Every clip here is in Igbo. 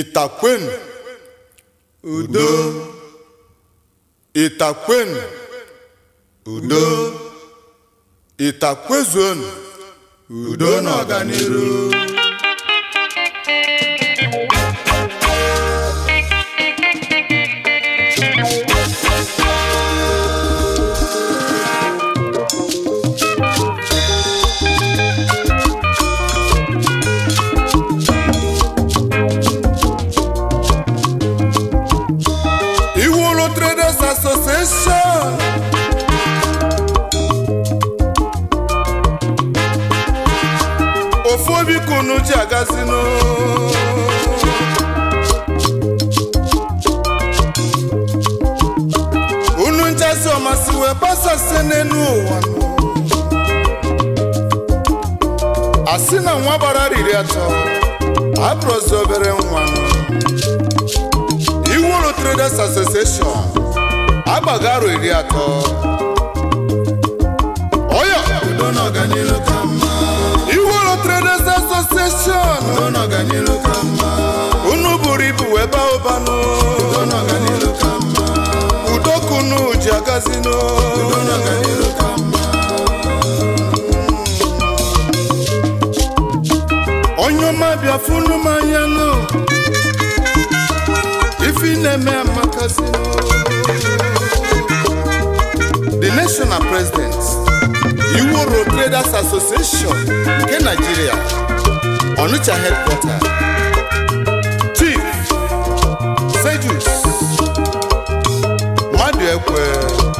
Ịtakwenu. udo Ịtakwenu. udo Itakwezuonu udo na kasino unu nchasi ọmasị wee gbasasị n'elu ụwa asị na nwa gbara riri atọ abụrụzi obere nwa iwuru traders association agbaga aro iri atọ ọya udo na udo na ọganilu ka mma unu buru ibu wee baa ụbanụ udo na ọganilu ji agazinu udo onye ọma bịa funu m anya nụ ife na-eme amakazinu the national president iworo traders association nke nigeria Onitsha headquarters Chief Sejus Mmadụ Ekwe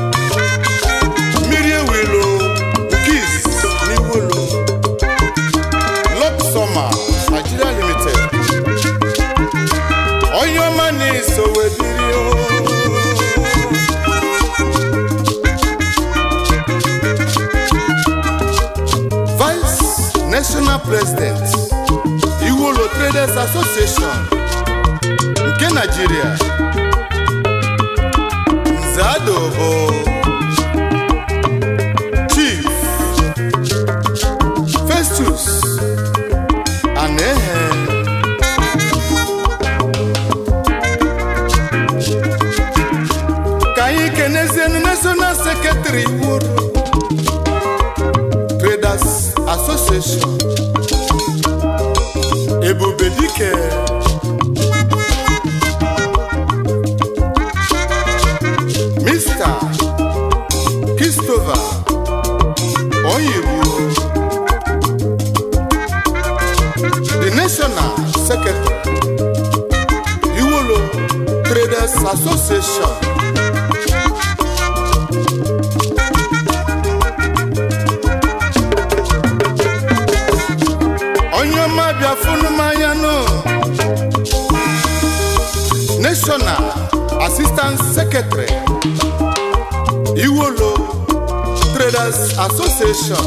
Permanent Secretary Iwolo Traders Association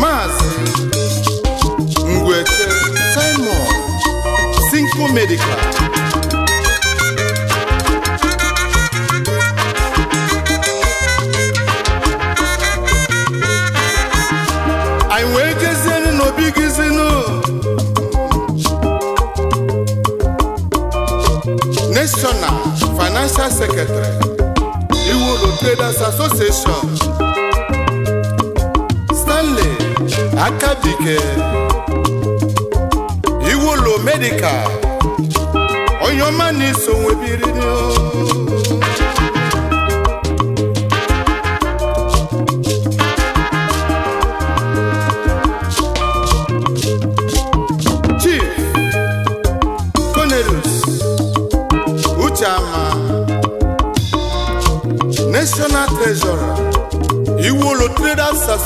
Maazị Ngwete Simon Sinko Medical Press Secretary Iwolo Traders Association Stanley Akabike Iwolo Medical Onyoma na-eso nwebiri n'o oh.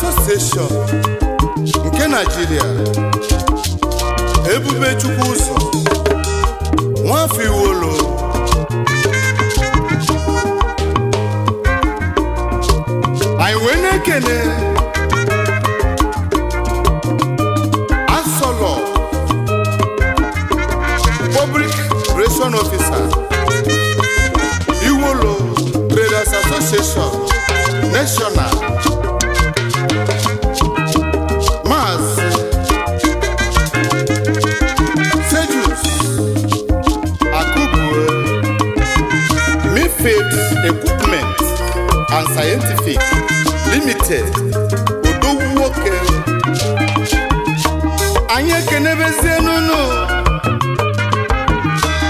Association nke ebube Ebubechukwu anyị ekenebezie n'unu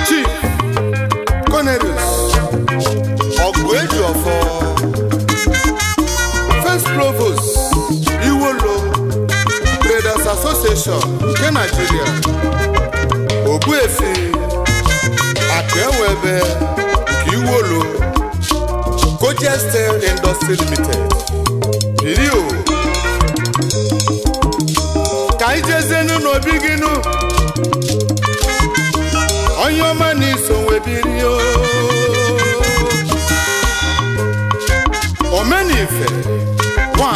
Chief Cornelius ọgụ eji ọfọ First Provost Iwolo Traders Association nke Nigeria akụ ewebe nke Iwolo Cojestel Industry Limited Bilio anyị jezienu n'obi gị nụ onye ọma na iso nwebiri omenife nwa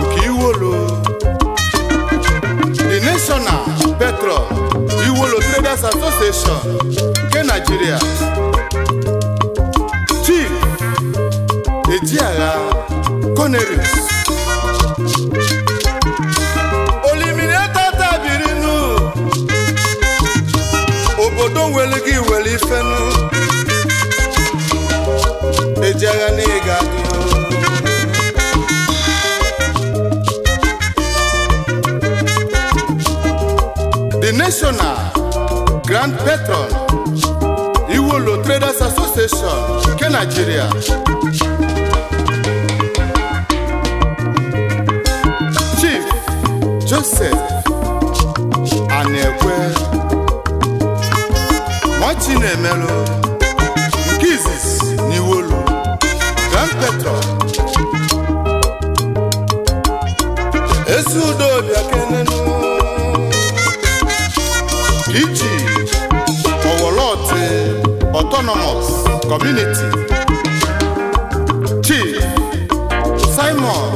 nke iwolo the national petrol iwolo traders association nke Nigeria chief ejiagha Cornelius obodo nwere e gị were ifenu ejegha na ịga The National Grand Patron Iwolo Traders Association nke Nigeria Chief Joseph Anekwe Mochi na emerụ nke izizi n'iwolu gampetro ezi udobia kenenu iji ọwọlọtị autonomous community Chief Simon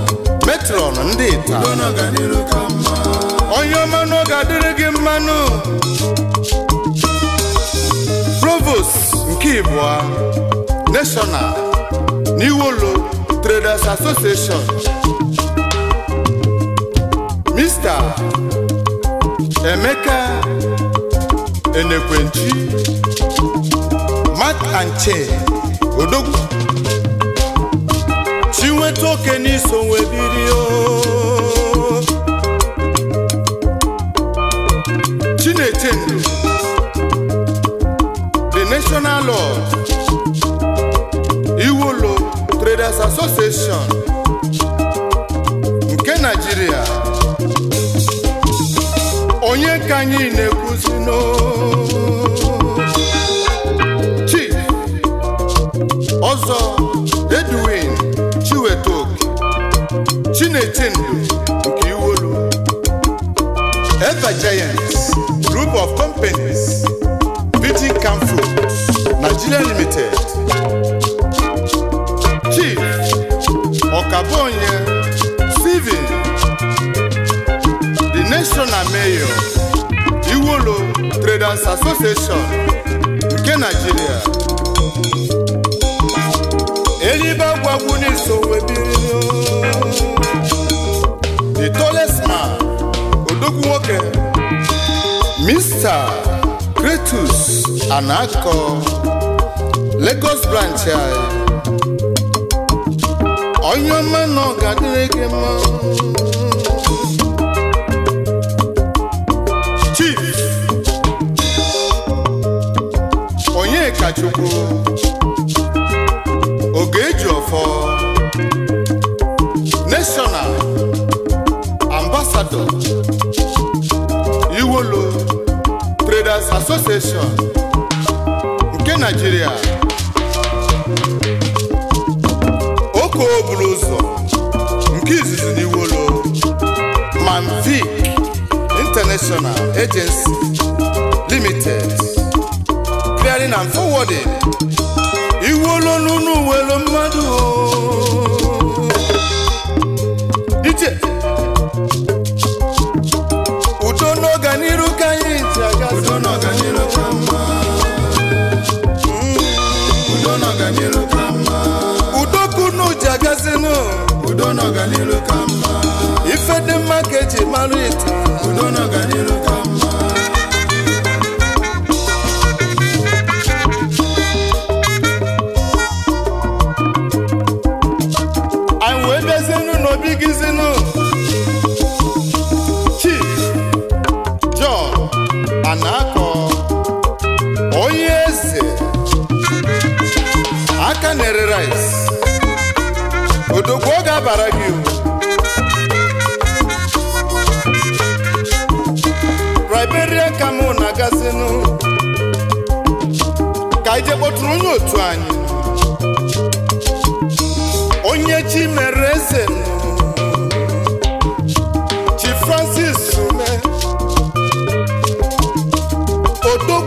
metron ndị taa onye ọma n'oge adịrị gị mmanụ provost nke ịbụọ national n'iwolo traders association mr emeka enekwenchi mat and chain odogwu nweta oke n'iso nwe biri o the national Law Iwolo Traders Association nke Nigeria onye ka anyị na-ekwu eti ndụ nke iwolu Ever Giants Group of Companies Nigeria Limited Chief Okabonye Steven The National Mayor Iwolo the tallest man odogwu nwoke Mr. Kretus Anako Lagos branch anyị eh, onye ọma na ọ ga gị mma Chief Onyeka kachukwu. Iwolo Traders Association nke Nigeria Oko buru ụzọ nke izizi na Iwolo Manvic International Agency Limited Clearing and Forwarding Iwolo Nunu, uwelo mmadụ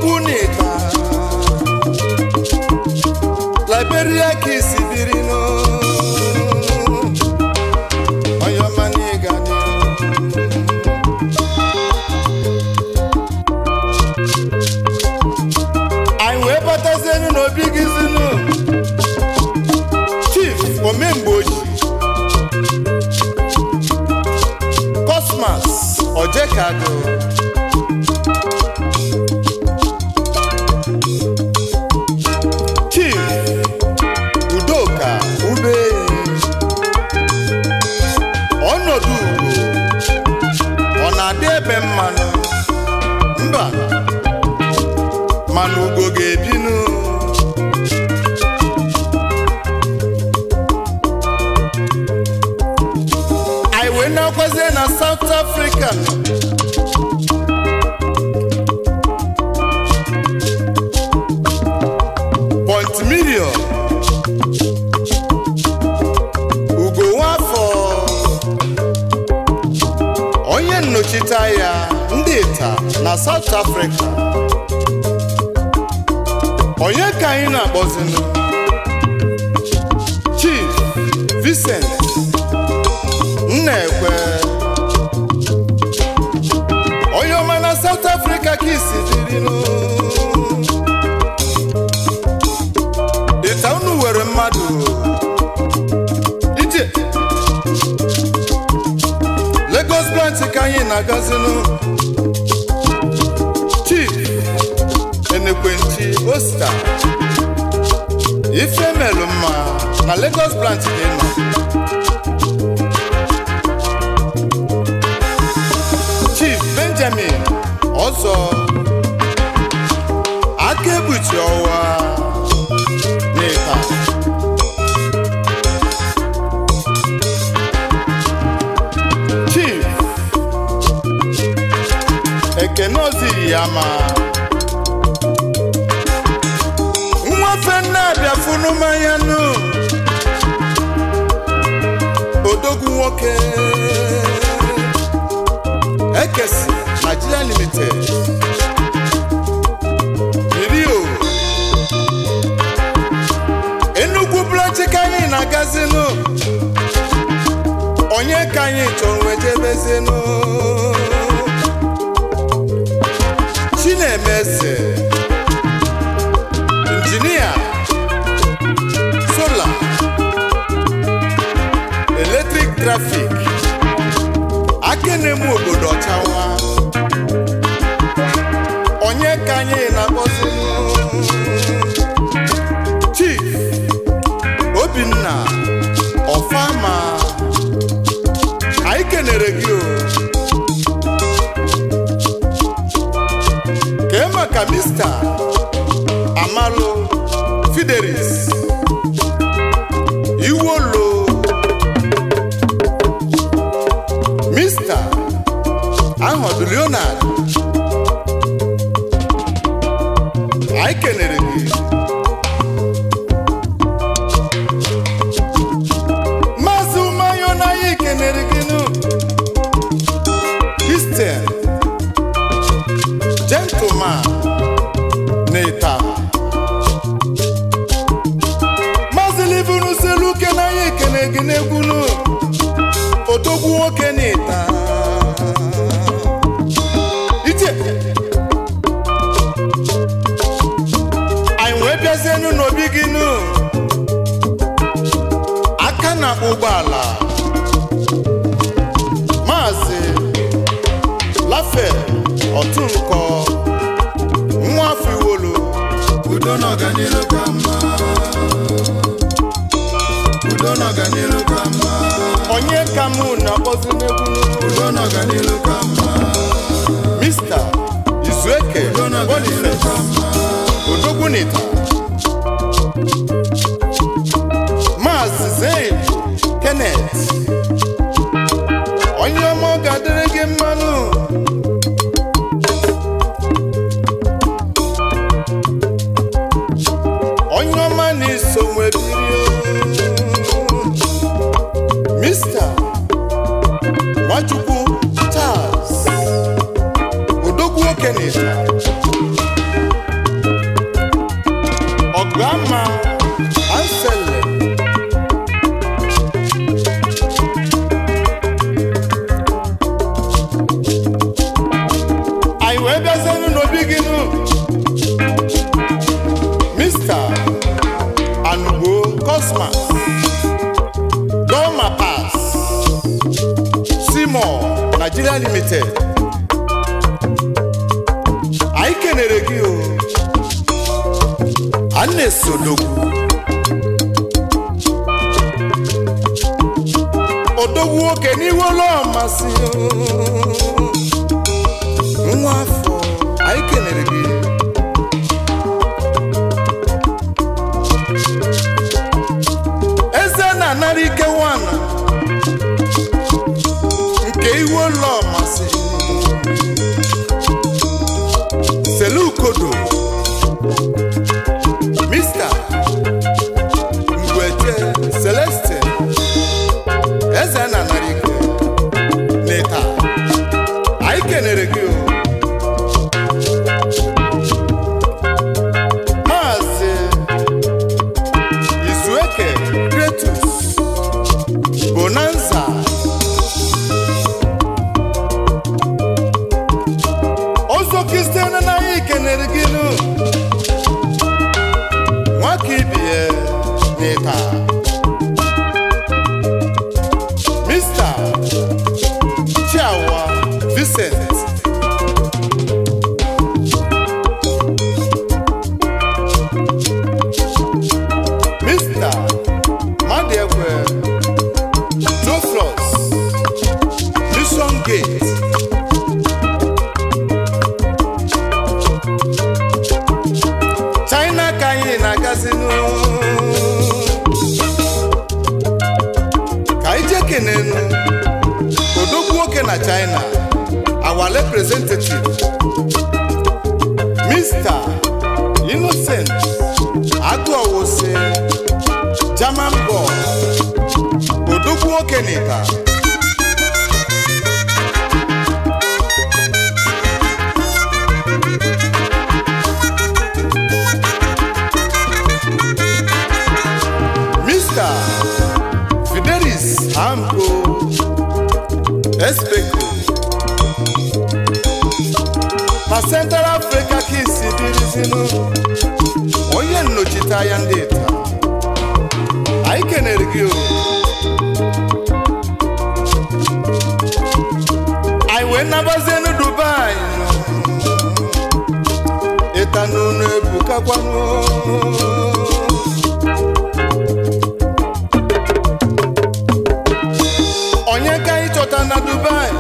Chukwunika Liberia ka isi biri n'oyomanigana anyị wee batazie enu n'obi gị zinu Chief Omemgboji Cosmas Ojekaka junior ugo nwafọ onye nnọchite ya ndị ita na South Africa onye ka anyị na-akpọzinụ Chief Vincent Nnekwe onye ọma na South Africa ka isi na-agazinu Chief Enekwenti Osta ife melụ mma na Lagos branch dị mma Chief Benjamin Ọzọ mma nwafe nnabịa funu mmanya nụ odogwu nwoke ekesi Nigeria limited irio Enugu blọchị ka anyị na-agazinụ onye ka anyị chọrọ wee jebezinụ ụmụ obodo ọchawa onye ka anyị na-akpọzi Chief Obinna Ọfama anyị kenere gị Ofe bụ Nwafiwolo udo na ọganiru ka mma udo na ọganiru ka mma onye ka mụ na-akpọzi n'egwu udo na ọganiru ka mma Izueke wee bịazienu n'obi gị nụ mista anugbo kosmas doma simo nigeria limited anyị kenere gị o a na-esodogwu odogwu nwoke n'iwe ọlọmasị nwa afọ anyị kelere gị wo se German boss odogwu okeneta Mr. Fidelis Hamko Espeko na Central Africa kisi dịrịzinụ nno chita ya ndị ta anyị kenere gị anyị wee nabazie nụ dubai ịta n'unu ebukakwanụ onye ka ịchọta na dubai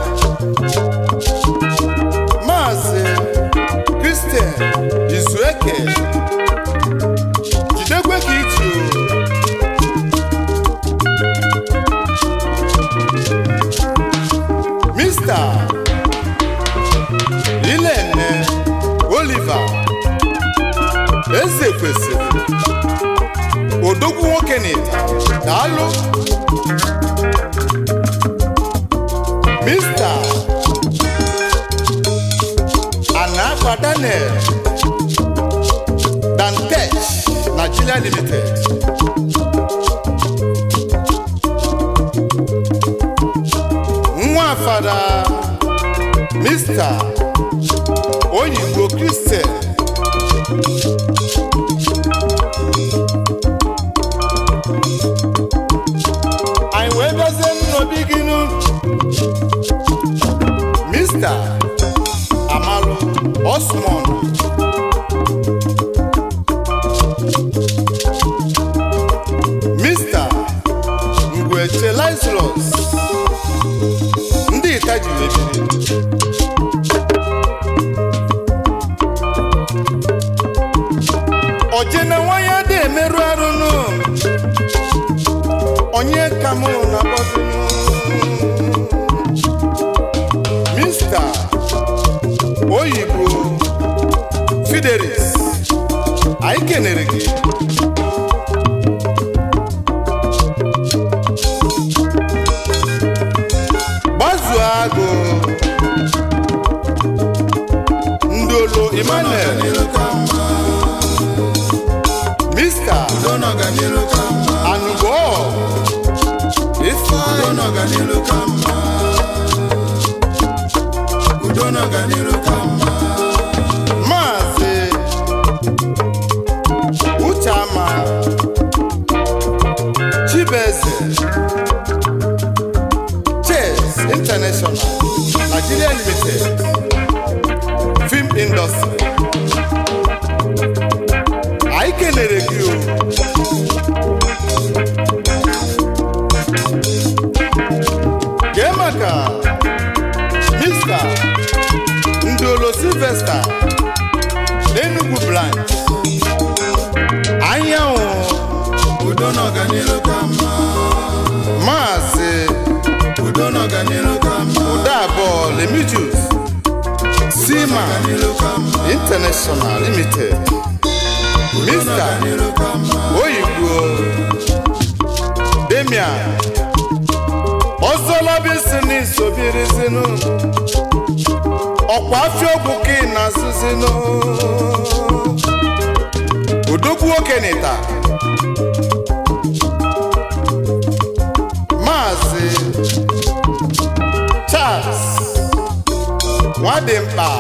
kejì lè ṣe. ọjena nwanyị adị emerụ onye ka na bọdụ mista oyibo fidelis anyị kenere gị Limited, film industry. Anyị kelere International Limited Mr. Oyibo Demian Ozolobisini sobirizinu ọkwa afiokwu ka ị na-asụzinu odogwu okenita Maazi Charles Nwadimkpa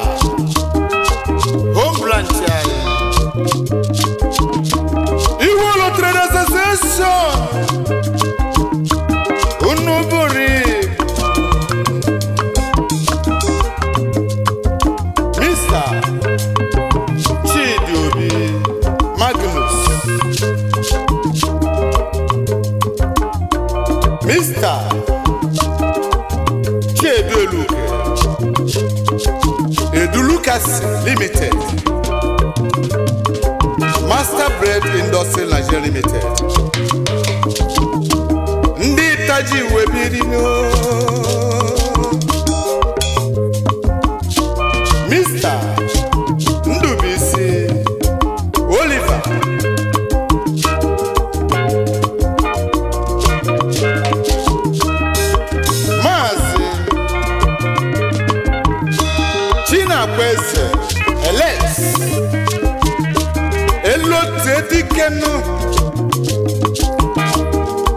ote dike nụ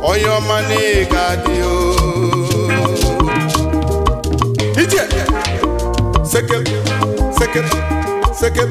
onye ọma na ị ga-adị ije sekem sekem sekem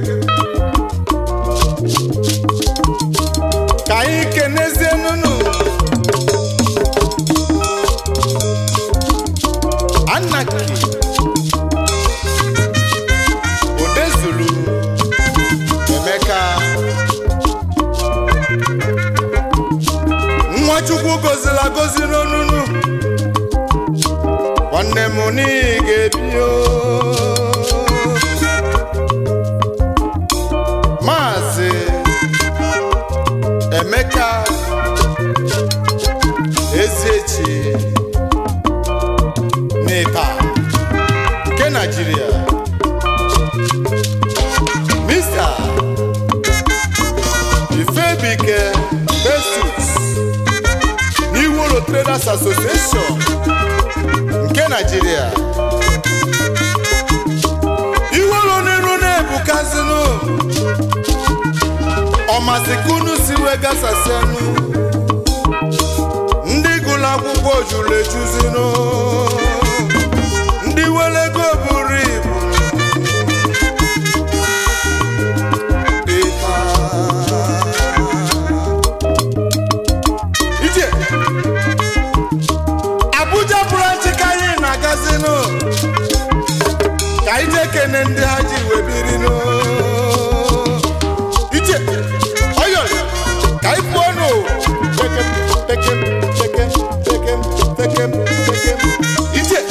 Jesus n'iworo Traders Association nke Nigeria iworo n'elu na-ebukazinu ọmasikunu siwe gasasianu ndị gụrụ akwụkwọ juru ejuzinu niile ndị ha ji wee biri iche ọyọ ka anyị pụọ nụ iche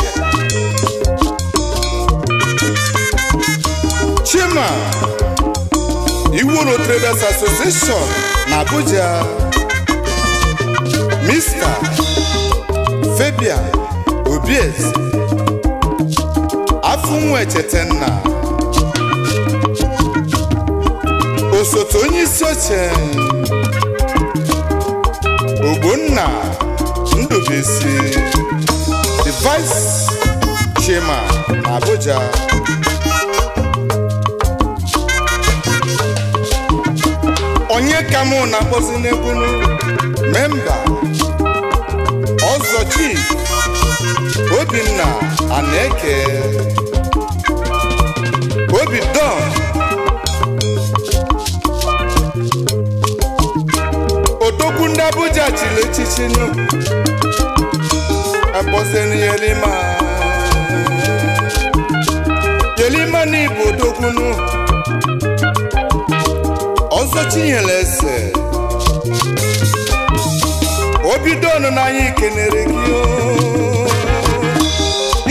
Chima Iwuru Traders Association na Abuja Mr. Fabian Obiez Afunwa nna osote onye isi oche Ogbonna Ndụbụisi the vice chairman na Abuja onye ka mụ na-akpọzi n'ebunu memba ọzọ chief Obinna eke be done. ndị Abuja chiri echichi nụ akpọsịrị yelima, Yerima n'Igbo odogwu nụ ọzọ chinyere eze obido ọnụ n'anya ikenere gị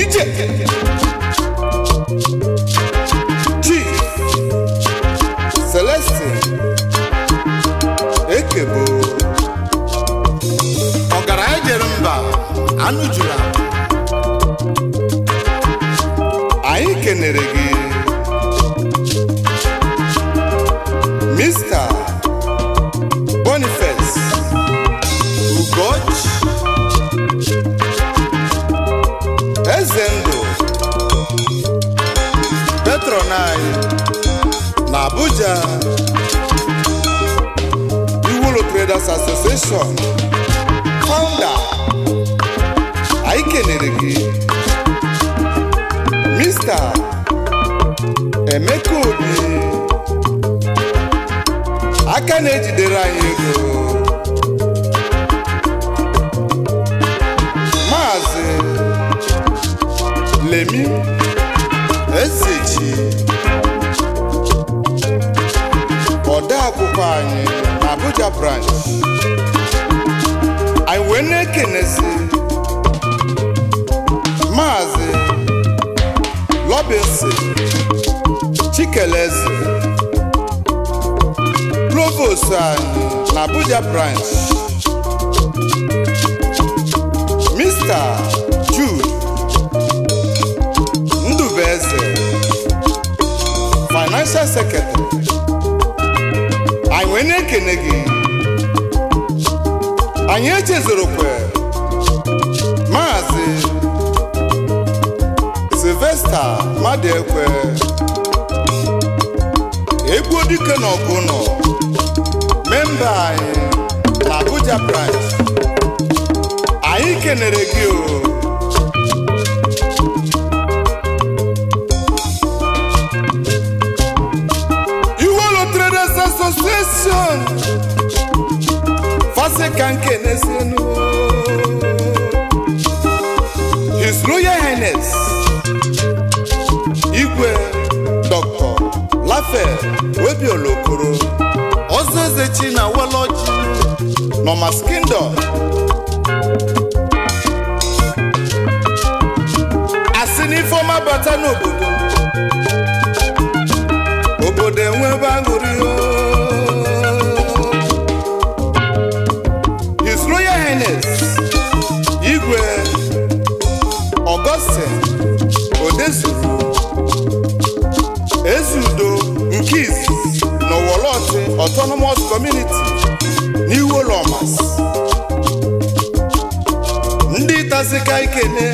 ije Builders Association founder anyị kelere gị Mr. Emeka Obi aka na-ejidere anyị ego Maazị Lemi Ezeji akwụkwọ anyị branch anyị wee na-ekenezi maazị lọbinsi chikeleze provost and na abuja branch mr jude ndubeze financial secretary anyị wee anyị echezorokwe maazị Sylvester Madekwe egbuo dike na ọgụ nọ memba anyị na Abuja branch anyị kenere gị o iwolo Traders Association ọzọ ka nke na-esi His Royal Highness Igwe Dr. Lafe Webiolokoro Okoro ezechi eze chi na Woloji Nomas Kingdom asị n'ifeọma bata n'obodo obodo enwebe aṅụrị autonomous community n'iwu ụlọmas ndị tazika ikene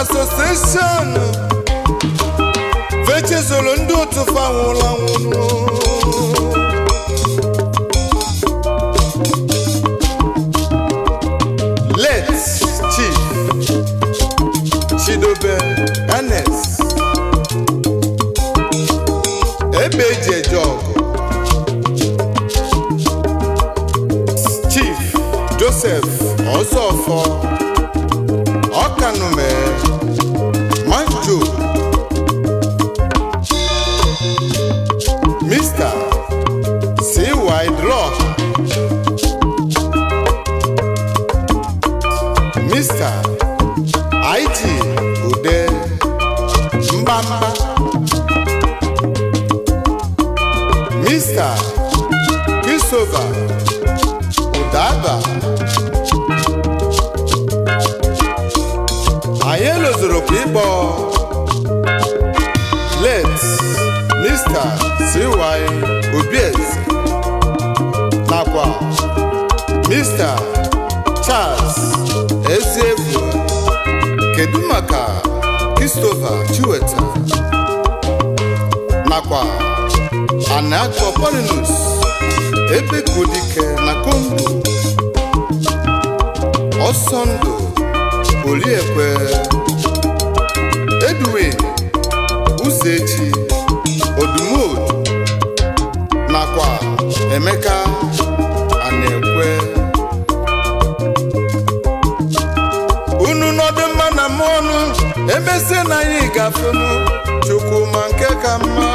Association Vechezolo ndo sọ fáwọn làwọn nù. late chief Chidobe Ernest ebeji eje chief Joseph Ọzọfọ. Jehovah kò dábàá. Anyị lụzuru kwa ịkpọ late Mr. C.Y. Obieze nakwa Mr. Charles Eziekwu kedu maka Christopher Chiweta nakwa Anacropolinus ebe Kodike na Congo ọsọ ndụ eduwe Edwin Uzechi ọdụmọdụ nakwa Emeka Anekwe unu nọdụ mma na m ọnụ emesie na anyị gafenu Chukwu ma nke ka mma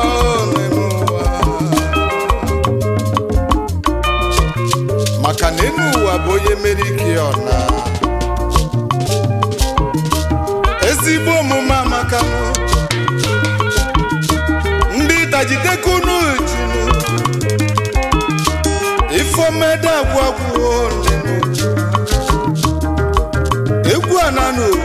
maka na enu ụwa bụ onye meri ike ọna ezigbo omume amaka ndị dajidekunu junu ifomede agwụ agwụ egwu ananụ